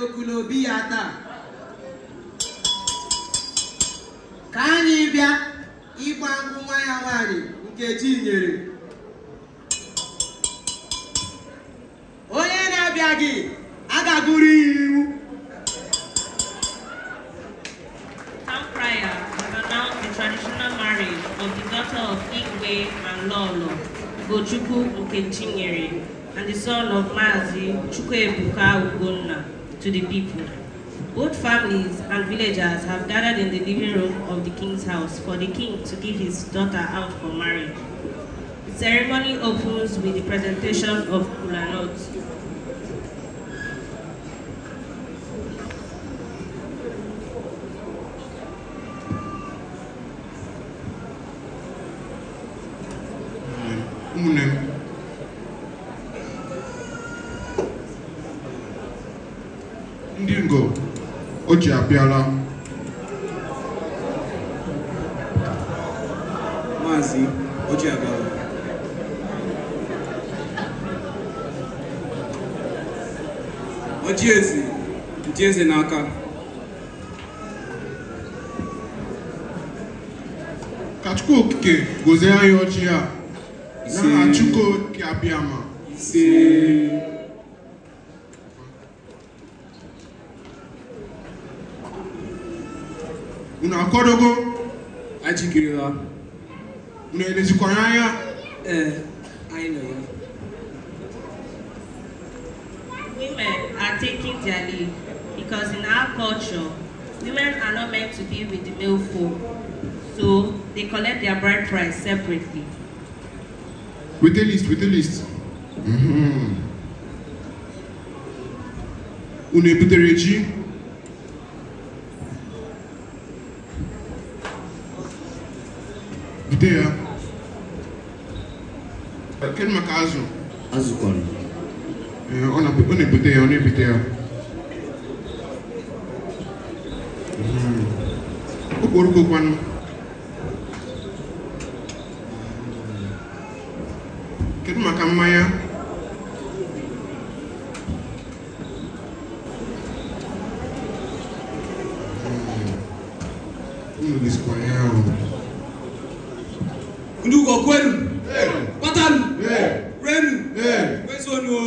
n'ekulu obi ya taa ka anyị bịa ịgba nkwụ nwa ya nwaanyị Nkechi nyere onye na-abịa gị agagụrụ ya iwu of the daughter of Igwe and Lolo, Ugochukwu Nkechinyere, and the son of Mazi Chukwuebuka Ugonna. to the people. Old families and villagers have gathered in the living room of the king's house for the king to give his daughter out for marriage. The ceremony opens with the presentation of Kulanot. Ugochi abịala. Maazị Ugochi abịala. Ojieze n'aka. Ka Chukwu Okike gozie anyị ọchị a na Chukwu Okike Abịama. Ise. unu akwadogo ajikirila unu elezikwara anya ee eh, anyị nọ ya women are taking their leave because in our culture women are not meant to be with the male folk so they collect their bride price separately with the list with the list mm -hmm. unu ebutere ji bido ya kedu maka azụ azụ kọrọ ọ na-ebute ya ọ na-ebute ya hmm. okporoko kwanụ kedu maka mmanya kwa kwenu kwatanu kwenu kwesonu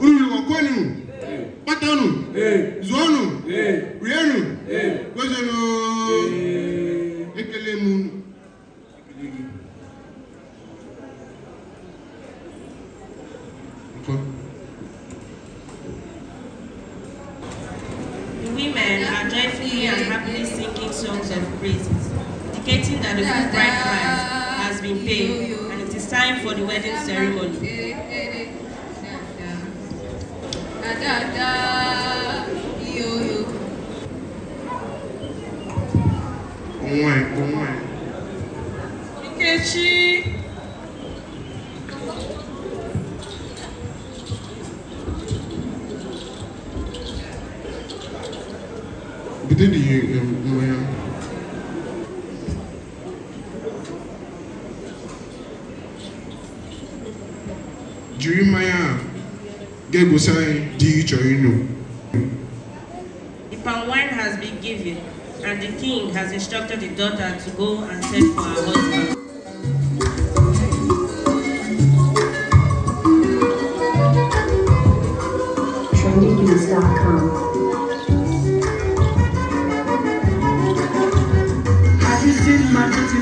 ululukwa kwenu kwatanu zuonu rienu kwesonu Thank you. songs of praises, indicating that the good bride price has been paid and it is time for the wedding ceremony. Nkechi Bitte die ähm, um, Nummer. Um, Jiri um, mmanya a uh, ga-egosi anyị The wine has been given and the king has instructed the daughter to go and send for her husband. Thank you.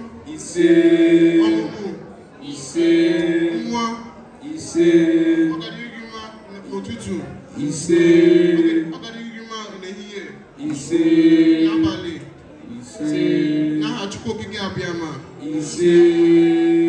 ìṣe ìṣe ìṣe òtútù ìṣe ìṣe ìṣe náà àtúkò gígé abiyamọ ìṣe.